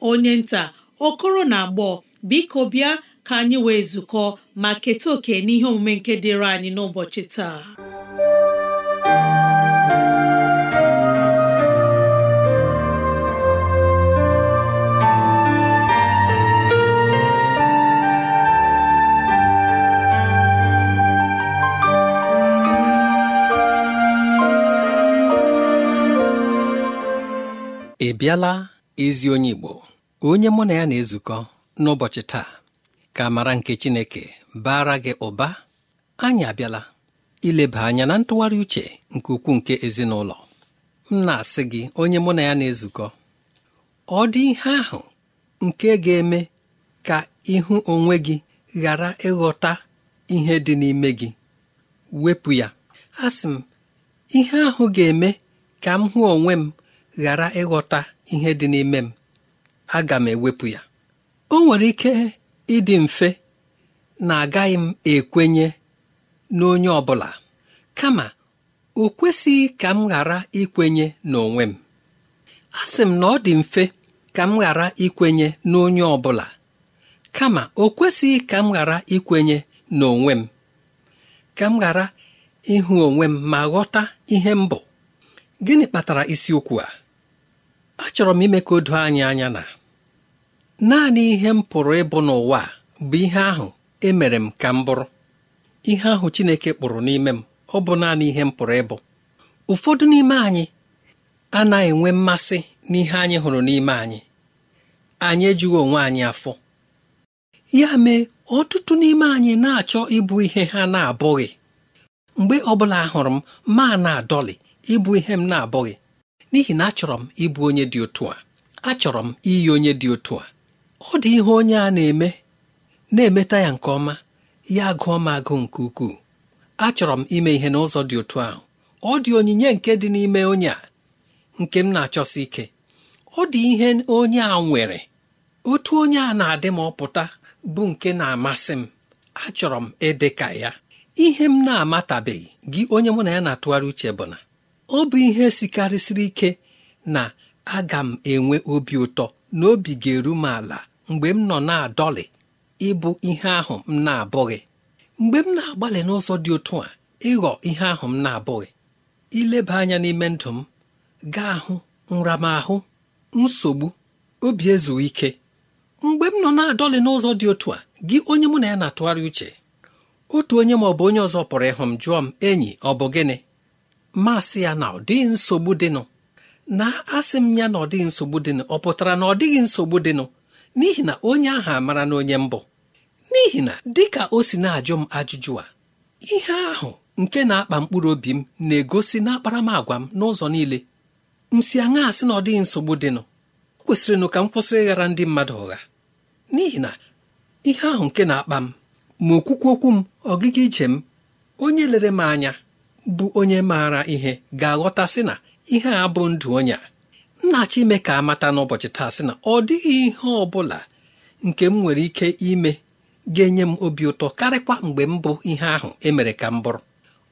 onye nta okoro na agbọ biko bịa ka anyị wee zukọ ma keta oke n'ihe omume nke dịịrị anyị n'ụbọchị taa ị bịala ezi onye Igbo onye mụ na ya na-ezukọ n'ụbọchị taa ka mara nke Chineke bara gị ụba anyị abịala ileba anya na ntụgharị uche nke ukwuu nke ezinụlọ m na-asị gị onye mụ na ya na-ezukọ ọ dị ihe ahụ nke ga-eme ka ịhụ onwe gị ghara ịghọta ihe dị n'ime gị wepụ ya asị m ihe ahụ ga-eme ka m hụ onwe m ghara ịghọta ihe dị n'ime m aga m ewepụ ya o nwere ike ịdị mfe na agaghị m ekwenye n'onye ọ bụla kama o kwesịghị ka m ghara ikwenye n'onwe m a sị m na ọ dị mfe ka m ghara ikwenye n'onye ọ bụla kama o kwesịghị ka m ghara ikwenye n'onwe m ka m ghara ịhụ onwe m ma ghọta ihe m bụ gịnị kpatara isiokwu a achọrọ m ime ka o doo anyị anya na naanị ihe m pụrụ ịbụ n'ụwa bụ ihe ahụ emere m ka m bụrụ ihe ahụ Chineke kpụrụ n'ime m ọ bụ naanị ihe m pụrụ ịbụ ụfọdụ n'ime anyị anaghị enwe mmasị n'ihe anyị hụrụ n'ime anyị anyị ejughị onwe anyị afọ ya mee ọtụtụ n'ime anyị na-achọ ịbụ ihe ha na-abụghị mgbe ọ bụla hụrụ m ma na-adọlị ịbụ ihe m na-abụghị n'ihi na achọrọ m ịbụ onye dị otu a achọrọ m iyi onye dị otu a ọ dị ihe onye a na-eme na-emeta ya nke ọma ya gụọ m agụ nke ukwuu achọrọ m ime ihe n'ụzọ dị otu ahụ ọ dị onyinye nke dị n'ime onye a nke m na-achọsi ike ọ dị ihe onye a nwere otu onye a na-adị m ọpụta bụ nke na-amasị m achọrọ m ịdị ka ya ihe m na-amatabeghị gị onye mụ na ya na-atụgharị uche bụ na ọ bụ ihe sikarịsịrị ike na aga m enwe obi ụtọ na obi ga-eru m ala mgbe m nọ na-adọlị ịbụ ihe ahụ m na-abụghị mgbe m na-agbalị n'ụzọ dị otu a ịghọ ihe ahụ m na-abụghị ileba anya n'ime ndụ m gaa ahụ nramahụ nsogbu obi ezughị ike mgbe m nọ na-adọlị n'ụzọ dị otu a gị onye mụ na ya na-atụgharị uche otu onye ma ọ bụ onye ọzọ pụrụ ịhụ m jụọ m enyi ọ bụ gịnị masị ya na ọ nsogbu dịnụ na asị m ya na ọ nsogbu dịnụ ọ pụtara na ọ dịghị nsogbu dịnụ n'ihi na onye ahụ amara na onye mbụ n'ihi na dịka o si na-ajụ m ajụjụ a ihe ahụ nke na-akpa mkpụrụ obi m na-egosi n'akparamagwa m n'ụzọ niile m si aṅa asị na ọ dịghị nsogbu dịnụ o kwesịrịnụ ka m kwụsịrị ịghara ndị mmadụ ụgha n'ihi na ihe ahụ nke na-akpa m ma okwukwu okwu m ọgịga ije m onye lere m anya bụ onye maara ihe ga-aghọta sị na ihe a bụ ndụ onye a m ime ka amata n'ụbọchị taa sị na ọ dịghị ihe ọ bụla nke m nwere ike ime ga-enye m obi ụtọ karịkwa mgbe m bụ ihe ahụ emere ka m bụrụ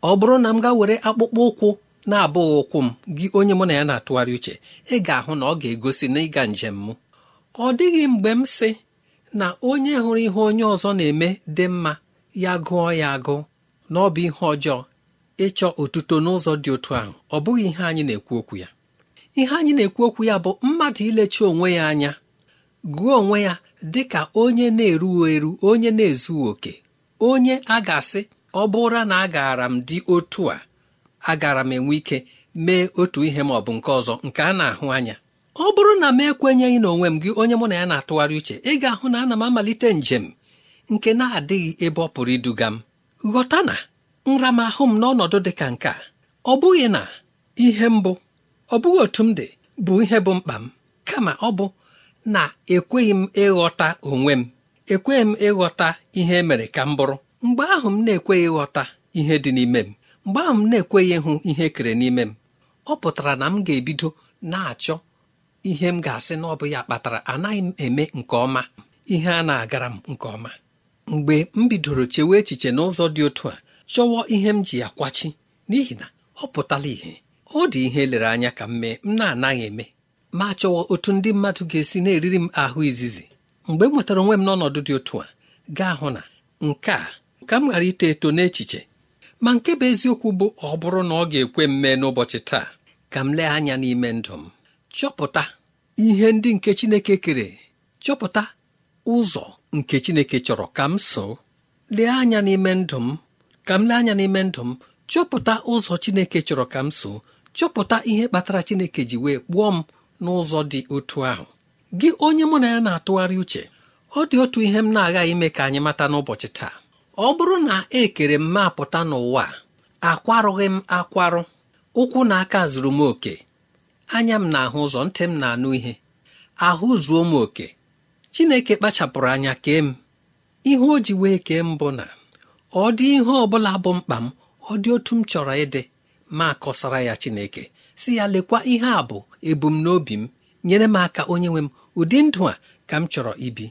ọ bụrụ na m ga were akpụkpọ ụkwụ na-abụghị ụkwụ m gị onye mụ na ya na-atụgharị uche ị ga-ahụ na ọ ga-egosi na ịga njem m ọ dịghị mgbe m sị na onye hụrụ ihe onye ọzọ na-eme dị mma ya gụọ ya agụ na ọ bụ ihe ọjọọ ịchọ otuto n'ụzọ dị otu ahụ ọ bụghị ihe anyị na-ekwu okwu ya ihe anyị na-ekwu okwu ya bụ mmadụ ilechi onwe ya anya gụọ onwe ya dị ka onye na-erughị eru onye na-ezughị okè onye a ga-asị ọ bụra na agaara m dị otu a agara m enwe ike mee otu ihe ma ọ bụ nke ọzọ nke a na-ahụ anya ọ bụrụ na m ekwenyeghị na onwe m gị onye mụ na ya na-atụgharị uche ị ga-ahụ na ana m amalite njem nke na-adịghị ebe ọ pụrụ iduga m ghọta na nramahụ m n'ọnọdụ dị ka nke a ọ bụghị na ihe mbụ ọ bụghị otu m dị bụ ihe bụ mkpa m kama ọ bụ na ekweghị m ịghọta onwe m ekweghị m ịghọta ihe e mere ka m bụrụ mgbe ahụ m na-ekweghị ịghọta ihe dị n'ime m mgbe ahụ m na-ekweghị ịhụ ihe kere n'ime m ọ pụtara na m ga-ebido na-achọ ihe m ga-asị na ọ bụ ya kpatara anaghị m eme nke ọma ihe a na-agara m nke ọma mgbe m bidoro chewe echiche n'ụzọ dị otu a chọwa ihe m ji akwachi n'ihi na ọ pụtala ihe ọ dị ihe lere anya ka m mee m na-anaghị eme ma chọwa otu ndị mmadụ ga-esi na-eriri m ahụ izizi mgbe m nwetara onwe m n'ọnọdụ dị otu a gaa hụ na nke a ka m ghara ito eto n'echiche ma nke bụ eziokwu bụ ọ bụrụ na ọ ga-ekwe m mee n'ụbọchị taa ka m lee anya n'ime ndụ m chọpụta ihe ndị nke Chineke kere chọpụta ụzọ nke Chineke chọrọ ka m so lee anya n'ime ndụ m ka m lee anya n'ime ndụ m chọpụta ụzọ Chineke chọrọ ka m so chọpụta ihe kpatara Chineke ji wee kpụọ m n'ụzọ dị otu ahụ gị onye mụ na ya na-atụgharị uche ọ dị otu ihe m na-aghaghị ime ka anyị mata n'ụbọchị taa ọ bụrụ na e kere m mapụta n'ụwa akwarụghị m akwarụ ụkwụ na aka zuru m oke anya m na-ahụ ụzọ ntị m na-anụ ihe ahụ zuo m oke Chineke kpachapụrụ anya kee m ihe o ji wee kee m bụ na ọ dị ihe ọ bụla bụ mkpa m ọ dị otu m chọrọ ịdị ma kọsara ya Chineke si ya lekwa ihe a bụ ebumnobi m nyere m aka onye nwe m ụdị ndụ a ka m chọrọ ibi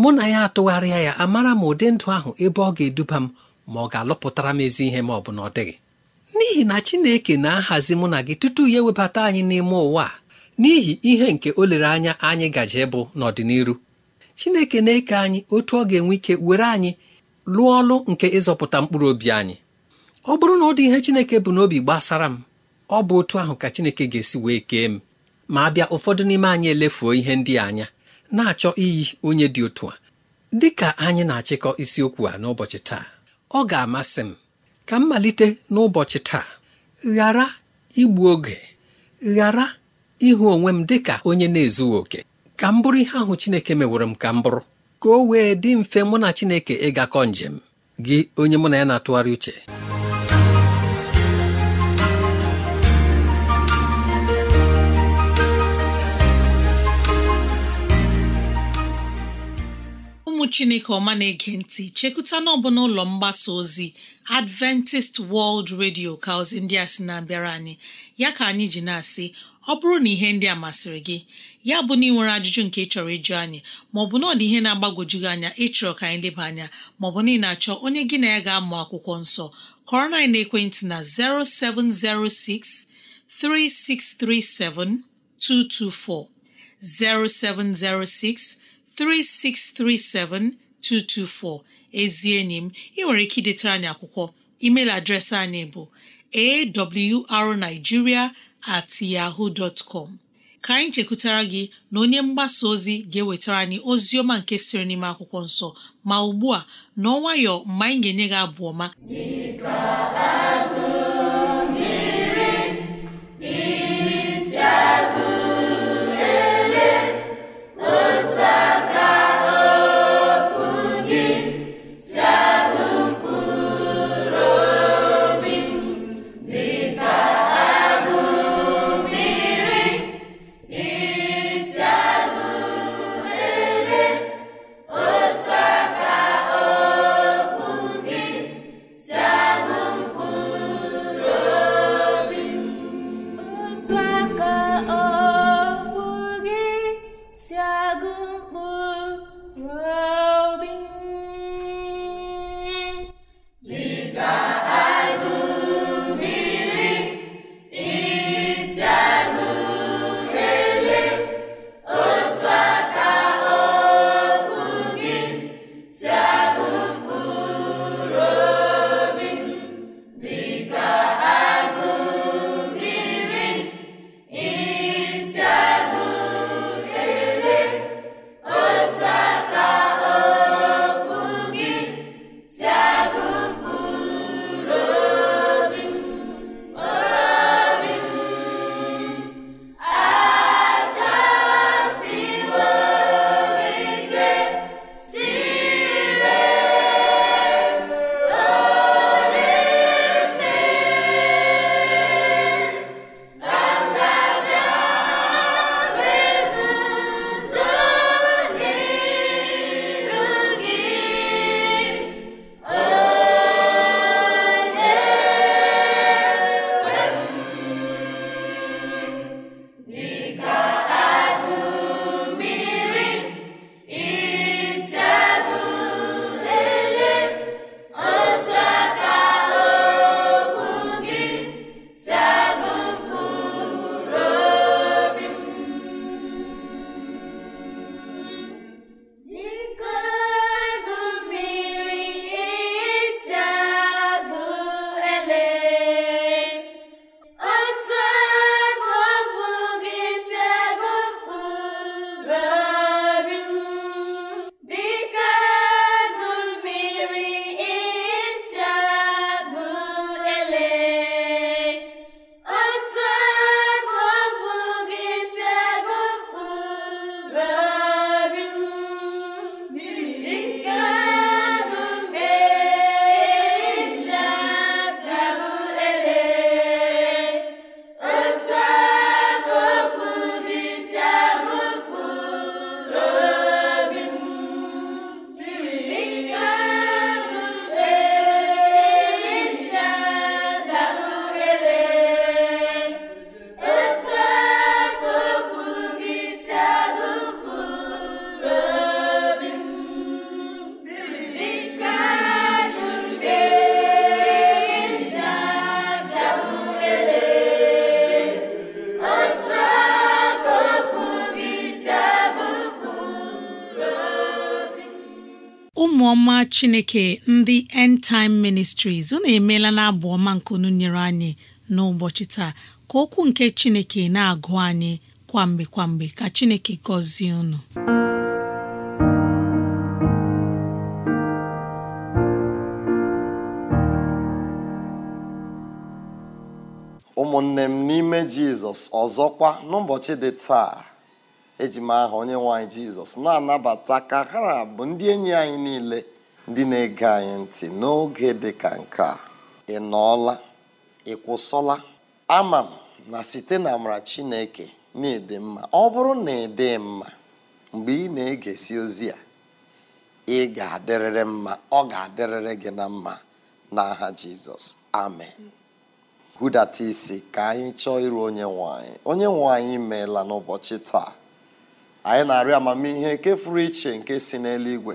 mụ na ya atụgharịa ya amara m ụdị ndụ ahụ ebe ọ ga-eduba m ma ọ ga-alụpụtara m ezi ihe ma ọ bụ na ọ dịghị n'ihi na Chineke na-ahazi mụ na gị tutu ya ewebata anyị n'ime ụwa n'ihi ihe nke o lere anya anyị gaje bụ n'ọdịnihu Chineke na-eke anyị otu ọ ga-enwe ike were anyị lụọ ọlụ nke ịzọpụta mkpụrụ obi anyị ọ bụrụ na ọ dị ihe Chineke bụ n'obi gbasara m ọ bụ otu ahụ ka Chineke ga-esi wee kee m ma bịa ụfọdụ n'ime anyị elefuo ihe ndị anya na-achọ iyi onye dị otu a dị ka anyị na-achịkọ isiokwu a n'ụbọchị taa ọ ga-amasị m ka m malite n'ụbọchị taa ghara igbu oge ghara ịhụ onwe m dị ka onye na-ezughị oke ka m bụrụ ihe ahụ Chineke meworo m ka m bụrụ ka o wee dị mfe mụ na Chineke ịgakọ njem gị onye mụ na ya na-atụgharị uche ụmụ Chineke ọma na-ege ntị chekụta n'ọbụ n'ụlọ mgbasa ozi Adventist World Radio ka ozi ndị a sị na-abịara anyị ya ka anyị ji na-asị ọ bụrụ na ihe ndị a masịrị gị ya bụ na ị ajụjụ nke ị chọrọ ịjụ anyị maọbụ na ọ dị ihe na-agbagwoju gị anya ịchọrọ ka anyị leba anya maọbụ na ị na-achọ onye gị na ya ga-amụ akwụkwọ nsọ kọrọ na ekwentị na 0706 224, 0706 ezi enyi m ị nwere ike idetara anyị akwụkwọ email adreesị anyị bụ awrnigeria at yahoo dot ka anyị chekwutara gị na onye mgbasa ozi ga-ewetara anyị ozi ọma nke sịrị n'ime akwụkwọ nsọ ma ugbu a n'ọnwayọ mgbe anyị ga-enye gị abụ ọma ọma chineke ndị end time ministries unu emeela na abụ ọma nke nyere anyị n'ụbọchị taa ka okwu nke chineke na-agụ anyị kwamgbe kwamgbe ka chineke gọzie unu ụmụnne m n'ime jizọs ọzọkwa n'ụbọchị dị taa ejima aha onye nwanyị jizọs na-anabata ka ha bụ ndị enyi anyị niile ndị na-ege anyị ntị n'oge dị ka nke a ị nọọla ị kwụsọla ama m na site na amara chineke na ede mma ọ bụrụ na ị ịdị mma mgbe ị na-egesi ozi a ị ga-adịrịrị mma ọ ga-adịrịrị gị na mma n'aha jizọs amen hụdata isi ka anyị chọọ iru onye nwe anyị onye nwe anyị meela n'ụbọchị taa anyị na-arịọ amamihe nke furu iche nke si n'eluigwe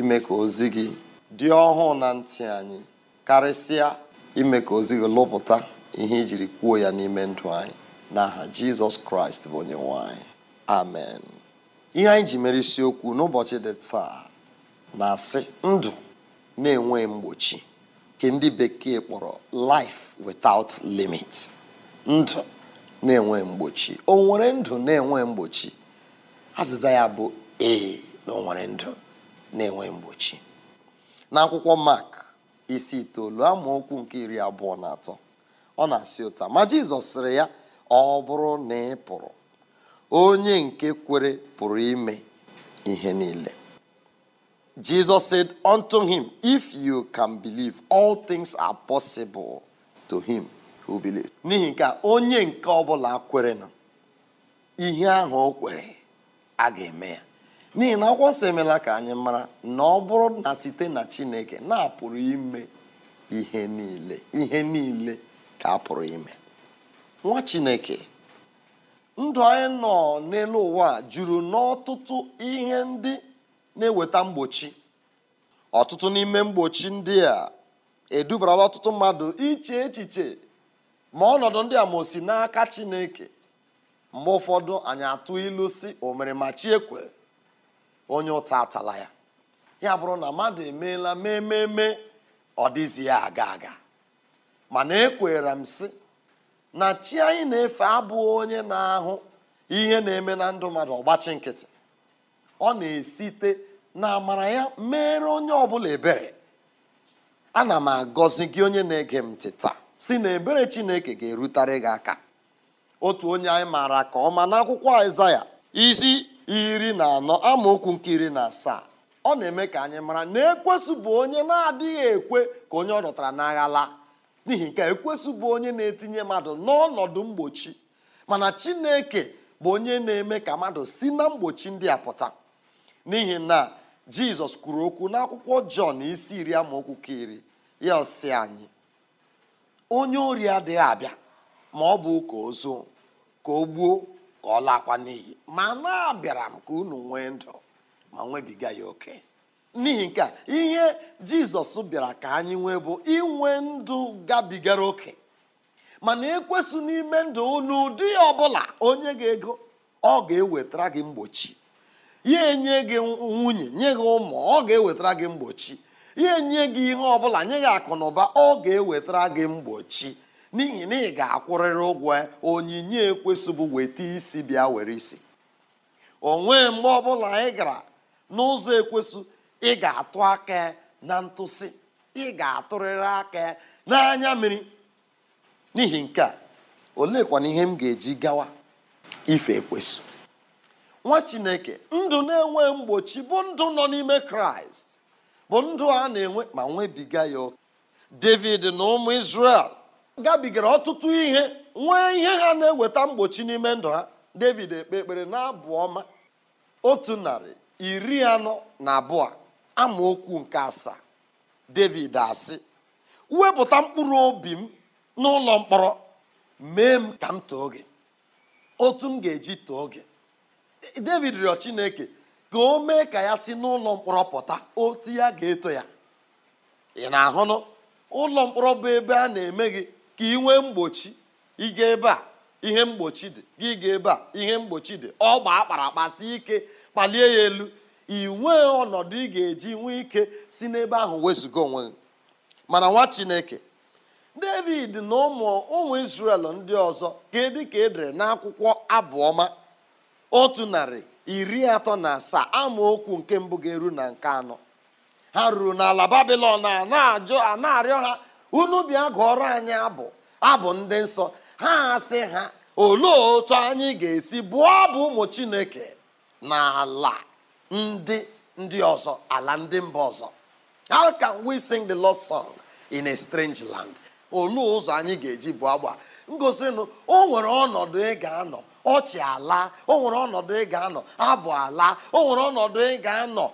ime ka ozi gị dị ọhụụ na ntị anyị karịsịa ime ka ozi gị lụpụta ihe ijiri kwuo ya n'ime ndụ anyị n'aha jizọs kraịst bụ onye nwanyị. amen ihe anyị ji mere isiokwu n'ụbọchị dị taa na-asị ndụ na-enwe mgbochi nke ndị bekee kpọrọ life without limit ndụ na-enwe mgbochi o nwere ndụ na-enwe mgbochi azịza ya bụ ee na ndụ na-enwe mgbochi n'akwụkwọ Mark isi itoolu amaokwu nke iri abụọ na atọ ọ na-asị ụta ma Jizọs sịrị ya ọ bụrụ na ị pụrụ onye nke kwere pụrụ ime ihe niile Jizọs said unto him if you can believe all things are possible to him who believe. n'ihi nke onye nke ọbụla kwere na ihe ahụ o kwere a ga-eme ya n'ihi na akwụkwọ nsọ emela ka anyị mara na ọ bụrụ na site na Chineke na-apụrụ ime ihe niile ihe niile ka a pụrụ ime nwa Chineke ndụ anyị nọ n'elu ụwa juru n'ọtụtụ ihe ndị na-eweta mgbochi ọtụtụ n'ime mgbochi ndị a edubarala ọtụtụ mmadụ iche echiche ma ọnọdụ ndị a ma osi n'aka Chineke mgbe ụfọdụ anyị atụ ilu si omere ma chi ekwe onye ụta atala ya ya bụrụ na mmadụ emeela mee ememe ọ dịzi ya aga aga mana ekwere m si na chi anyị na-efe abụghị onye na-ahụ ihe na-eme na ndụ mmadụ ọgbachi nkịtị ọ na-esite na amara ya mere onye ọbụla ebere ana m agọzi gị onye na-ege m tịta si na ebere Chineke ga-erutere gị aka otu onye anyị maara ka ọma n'akwụkwọ Aịzaya isi iri na anọ amaokwu nke iri na asaa ọ na-eme ka anyị mara na ekwesụbụ onye na-adịghị ekwe ka onye ọ dọtara n'agha laa n'ihi nke ekwesụ onye na-etinye mmadụ n'ọnọdụ mgbochi mana Chineke bụ onye na-eme ka mmadụ si na mgbochi ndị a pụta n'ihi na Jizọs kwuru okwu n'akwụkwọ Jọn isi iri amaokwu ka iri ya ọsị anyị onye ori adịghị abịa ma ọ bụ ụka ozu ka o gbuo ka ọ lakwa n'iyi ma na abịara m ka unu nwee ndụ ma nwebiga ya oke n'ihi nke a ihe jizọs bịara ka anyị nwee bụ inwe ndụ gabigara oke mana ekwesụ n'ime ndụ n'ụdị ọbụla onye ga-ego ọ ga-ewetara gị mgbochi ya enye gị nwunye nye gị ụmụ ọ ga-ewetara gị mgbochi ya enye gị ihe ọbụla nye gị akụ na ụba ọ ga-ewetara gị mgbochi n'ihi na ị ga-akwụrịrị ụgwọ onyinye ekwesịbụ weta isi bịa were isi onwe mgbe ọbụla ị gara n'ụzọ ekwesị ị ga-atụ aka na ntụsi. ị ga-atụrịrị aka n'anya mmiri n'ihi nke a oleekwana ihe m ga-eji gawa ife ekwesị nwa chineke ndụ na-enwe mgbochi bụ ndụ nọ n'ime kraịst bụ ndụ a na-enwe ma nwebiga ya david na ụmụ isrel gabigara ọtụtụ ihe nwee ihe ha na-eweta mgbochi n'ime ndụ ha david ekpe ekpere na-abụ ọma otu narị iri anọ na abụọ amaokwu nke asaa david asị wepụta mkpụrụ obi m n'ụlọ mkpọrọ mee m ka m too gị otu m ga-eji too gị e, david rịọ chineke ka o mee ka ya si n'ụlọ mkpọrọ pụta otu ya ga-eto ya ị na-ahụnụ ụlọ mkpọrọ bụ ebe a na-eme gị ka ị nwee mgbochi ịga ebe a ihe mgbochi dị gị ga ebe a ihe mgbochi dị ọ gbaa akpara akpasi ike kpalie ya elu inwe ọnọdụ ị ga-eji nwee ike si n'ebe ahụ wezụga onwe gị mana nwa chineke david na ụmụ ụmụ israel ndị ọzọ kedu ka edere n'akwụkwọ abụọma otu narị iri atọ na asaa amaokwu nke mbụ ga-eru na nke anọ ha ruru n'ala babilọn a na a na-arịọ ha unu bịa gụọrọ anyị abụ abụ ndị nsọ ha asị ha olee otu anyị ga-esi bụọ abụ ụmụ chineke na ala ndị ndị ọzọ ala ndị mba ọzọ how can we sing the lost song in a strange land olee ụzọ anyị ga-eji bụ agba ngosirinu o nwere ọnọdụ ị ga-anọ ọchị ala o nwere ọnọdụ ị ga-anọ abụ ala o nwere ọnọdụ ị ga-anọ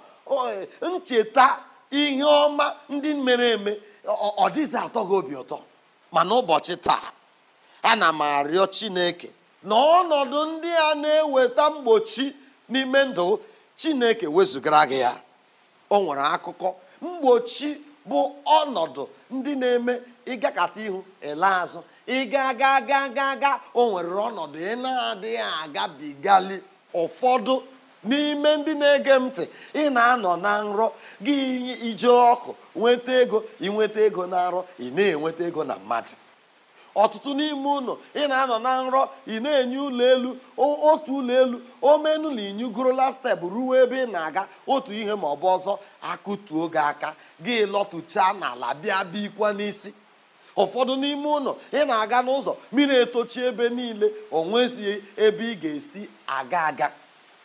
e, ncheta ihe ọma ndị mere eme ọ dịzị atọ gị obi ụtọ mana ụbọchị taa ana m arịọ chineke na ọnọdụ ndị a na-eweta mgbochi n'ime ndụ chineke wezụgara gị ya o nwere akụkọ mgbochi bụ ọnọdụ ndị na-eme ịgakata ihu ele azụ ịga ga ga ga ga o nwere ọnọdụ ị na-adịghị agabigali ụfọdụ n'ime ndị na-ege m ntị ị na-anọ na nrọ gị ije ọkụ nweta ego ịnweta ego na nrọ ị na-enweta ego na mmadụ ọtụtụ n'ime ụlọ ị na-anọ na nrọ ị na-enye ụlọ elu otu ụlọ elu omenu na inyugorola steepụ ruo ebe ị na-aga otu ihe ma ọ bụ ọzọ akụtuo gị aka gị lọtụchaa n'ala bịa bikwa n'isi ụfọdụ n'ime ụlọ ị na-aga n'ụzọ mmiri etochi ebe niile o ebe ị ga-esi aga aga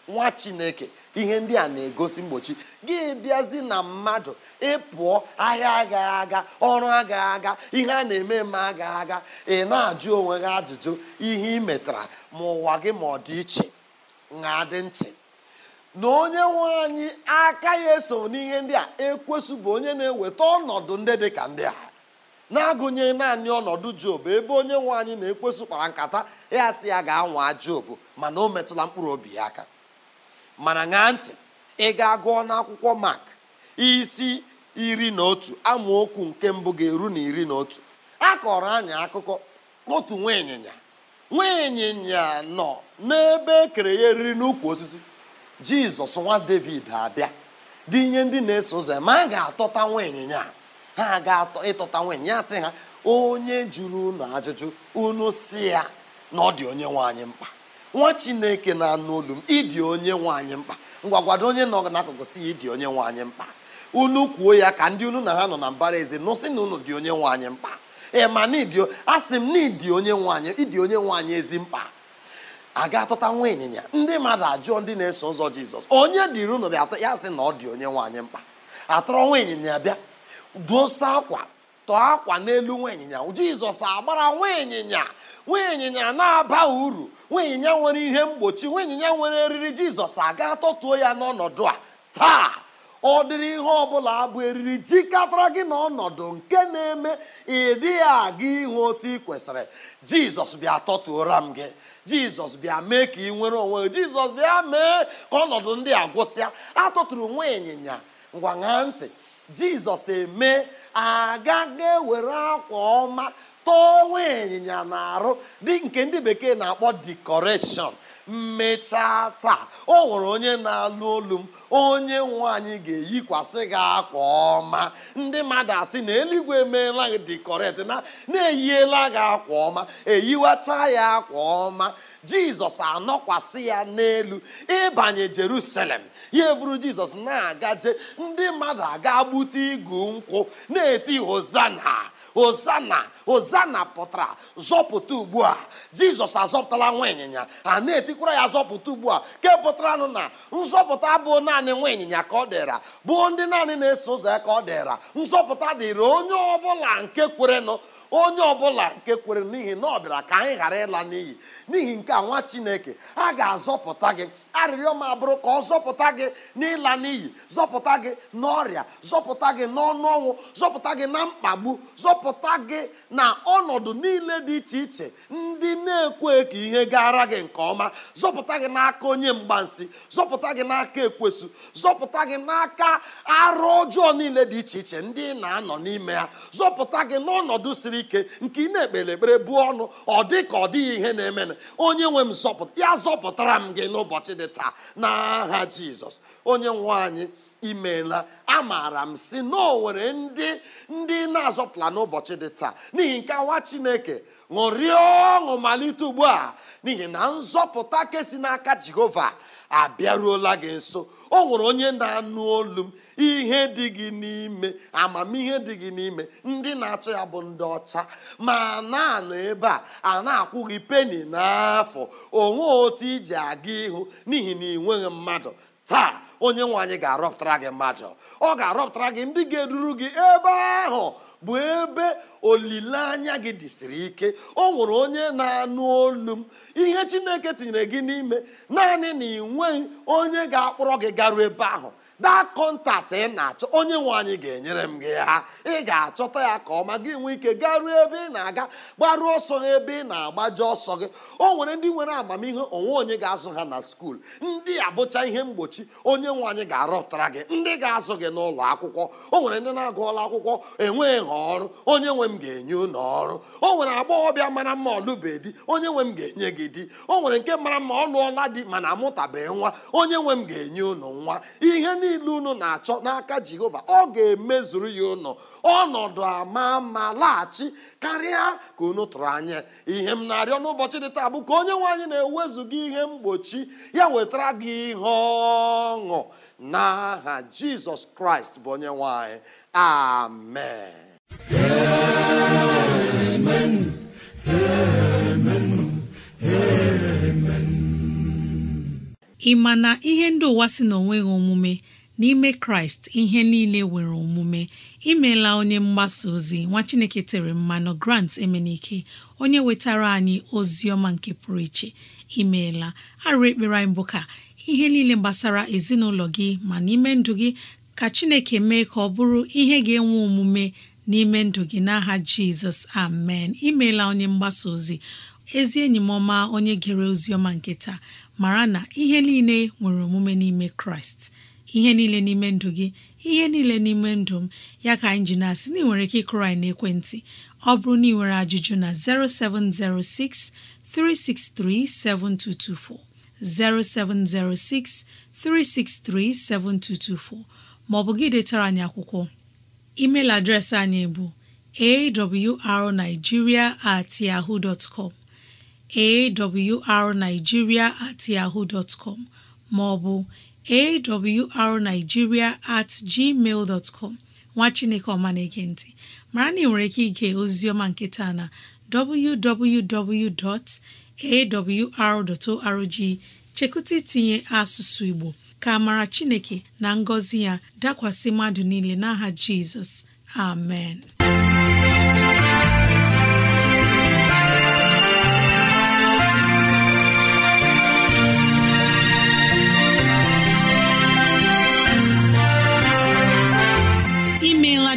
nwa chineke ihe ndị a na-egosi mgbochi gị bịazi na mmadụ ịpụọ ahịa agaghị aga ọrụ agaghị aga ihe a na-eme eme agaghị aga ị na-ajụ onwe gị ajụjụ ihe ị metara ma ụwa gị ma ọ dị iche na adị ntị na onye nwe anyị aka ya eso n'ihe ndị a ekwesụ bụ onye na-eweta ọnọdụ ndị dị ka ndị a na-agụnye naanị ọnọdụ job ebe onye nwe anyị na-ekwesụ kpara nkata ya ya ga-anwa job mana o metụla mkpụrụ obi ya aka mana ṅaa ntị ị ga-agụọ n'akwụkwọ mak isi iri na otu amaokwu nke mbụ ga-eru na iri na otu a kọrọ anyị akụkọ otu nwa ịnyịnya nwa ịnyịnya nọ n'ebe ekere ya eriri n'ukwu osisi jizọs nwa david abịa dị ihe ndị na-eso ụzọ ma a ga-atọta nwa ịnyịnya ha ga-atọ ịtọta nwa ịnyịnya sị ha onye jụrụ unu ajụjụ unu si ya na ọ dị onye nwe anyị mkpa nwa chineke na-anụ olu m ịdị onye nwaanyị mkpa ngwagwado onye nọ n'akụkụ si ya ịdị onye nwaanyị mkpa unu kwuo ya ka ndị unu na ha nọ na mbara eze nụsị na unu dị onye nwaanyị mkpa ee ma n'ịdị asị m na ịdị onye nwaanyị ịdị onye nwaanyị ezi mkpa a ga atụta nwa ịnyịnya ndị mmadụ ajụọ ndị na-eso ụzọ jizọs onye dịrị unu bịa ya sị na ọ dị onye nwaanyị mkpa atọrọ nwa ịnyịnya bịa duosa akwa tọọ akwa n'elu nwa ịnyịnya jizọs agbara nwa ịnyịnya nwa ịnyịnya na-aba uru nwa ịnyịnya nwere ihe mgbochi nwa ịnyịnya nwere eriri jizọs aga atọtuo ya n'ọnọdụ a taa ọ dịrị ihe ọbụla abụ eriri jikọtara gị n'ọnọdụ nke na-eme ịdịghị aga ihu otu ị kwesịrị jizọs bịa tọtuora m gị jizọs bịa mee ka ị nwere onwe jizọs bịa mee ka ọnọdụ ndị a gwụsịa atụtụrụ nwa ịnyịnya ngwa ṅaa ntị jizọs eme aga were ewere akwa ọma tọwa ịnyịnya na-arụ dị nke ndị bekee na-akpọ dikọreshọn mmechaa taa o nwere onye na-alụ olu m onye nwanyị ga-eyikwasị gị akwa ọma ndị mmadụ asị na eluigwe emeela dikọreshọn na na-eyiela gị akwa ọma eyiwacha ya akwa ọma jizọs anọkwasị ya n'elu ịbanye jerusalem ya eburu jizọs na-agaje ndị mmadụ aga gbute igu nkwụ na-eti hozana hozana hozana pụtara zọpụta ugbu a jizọs azọpụtala nwa ịnyịnya a na-etikwara ya zọpụta ugbu a ke pụtaranụ na nzọpụta abụọ naanị nwa ịnyịnya ka ọ dịra bụ ndị naanị na-eso ụzọ ya ka ọ dịra nzọpụta dịrị onye ọbụla nke kwerenụ onye ọbụla nke kwere n'ihi na ọ bịara ka anyị ghara ịla n'iyi n'ihi nke a nwa chineke a ga-azọpụta gị arịrịọ m abụrụ ka ọ zọpụta gị n'ịla n'iyi zọpụta gị n'ọrịa zọpụta gị n'ọnụ ọnwụ zọpụta gị na mkpagbu zọpụta gị na ọnọdụ niile dị iche iche ndị na-ekwe ka ihe gara gị nke ọma zọpụta gị n'aka onye mgbansi zọpụta gị n'aka ekwesu zọpụta gị n'aka arụ ọjọọ niile dị iche iche ndị na-anọ n'ime ya zọpụta gị n'ọnọdụ siri ike nke ị na-ekpere ekpere bụ ọnụ ọ dị ka ọ dịghị ihe na-emena onye nwe m zọpụta ya zọpụtara m gị n'ụbọchị dị gị taa jizọs onye nwe anyị imeela amaara m si na o nwere ndị ndị na-azọpụla n'ụbọchị dị taa n'ihi nke awa chineke ṅụrịọ ọṅụ malite ugbu a n'ihi na nzọpụta kesi n'aka jehova abịaruola gị nso ọ nwere onye na-anụ olu m ihe dị gị n'ime amamihe dị gị n'ime ndị na-achọ ya bụ ndị ọcha ma na-anọ ebe a a na akwụghị gị peni n'afọ onwe otu iji aga ihu n'ihi na ị mmadụ taa onye nwe ga-arọpụtara gị mmadụ ọ ga-arọpụtara gị ndị ga-eduru gị ebe ahụ bụ ebe olileanya gị dịsiri ike ọ nwụrụ onye na-anụ olu m ihe Chineke tinyere gị n'ime naanị na ị nweghị onye ga-akpọrọ gị garuo ebe ahụ that contact ị na-achọ onye nwe anyị ga-enyere m gị ha ị ga-achọta ya ka ọma gị nwee ike garuo ebe ị na-aga gbaruo ọsọ ha ebe ị na-agbaji ọsọ gị o nwere ndị nwere amamihe onwe onye ga-azụ ha na skuul ndị abụcha ihe mgbochi onye nwe anyị ga-arọpụtara gị ndị ga-azụ gị n'ụlọ akwụkwọ o nwere ndị na-agụọla akwụkwọ enweghị ha ọrụ onye nwe m ga-enye ụlọ ọrụ o nwere agbọghọbịa mara mma ọlụbe di onye nwe m ga-enye gị di o nwere nke mara mma ọ di mana amụtabeghị nwa onye nwe m ga-enye ụlọ nwa ihe niile unu na-achọ n'aka jehova ọ ga-emezuru ya ụnọ ọnọdụ ama ma laghachi karịa ka unu tụrụ anya ihe m na-arịọ n'ụbọchị dị taa bụ ka onye nwanyị na-ewezuga ihe mgbochi ya wetara gị ihe ọṅụ n'aha jizọs kraịst bụ onye nwanyị. amen ị ma na ihe ndị ụwa si na omume n'ime kraịst ihe niile nwere omume imela onye mgbasa ozi nwa chineke tere mmanụ grant emenike onye wetara anyị ozi ọma nke pụrụ iche imeela arụ ekpere anyị bụ ka ihe niile gbasara ezinụlọ gị ma n'ime ndụ gị ka chineke mee ka ọ bụrụ ihe ga-enwe omume n'ime ndụ gị n'aha jizọs amen imeela onye mgbasa ozi ezi enyi m ọma onye gere ozi ọma nke taa mara na ihe niile nwere omume n'ime kraịst ihe niile n'ime ndụ gị ihe niile n'ime ndụ m ya ka anyị ji na-asị na ị nwere ike ịkụrụ anyị n'ekwentị ọ bụrụ na ị nwere ajụjụ na 0706 363 7224 0706 363 7224 maọbụ gị detara anyị akwụkwọ email adreesị anyị bụ awrnigeria at yahoo dot com awrnigeria at yahoo dot com maọbụ awrnigeria at gmail dot nwa chineke ọma na-ege mara na ị nwere ike ige oziọma nkịta na www.awr.org chekụta itinye asụsụ igbo ka mara chineke na ngọzi ya dakwasị mmadụ niile n'aha jizọs amen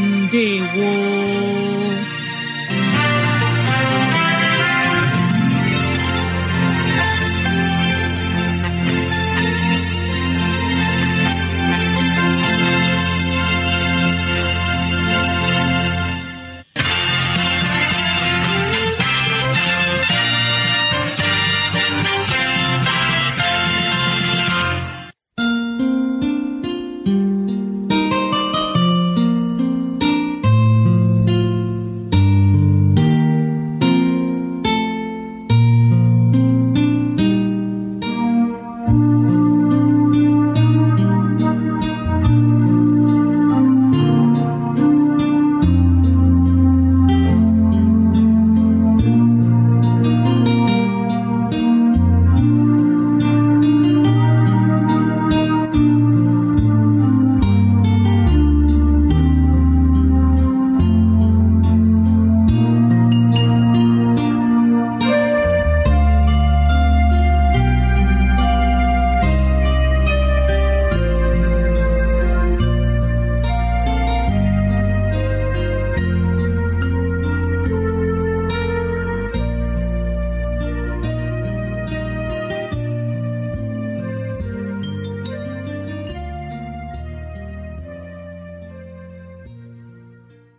ndewo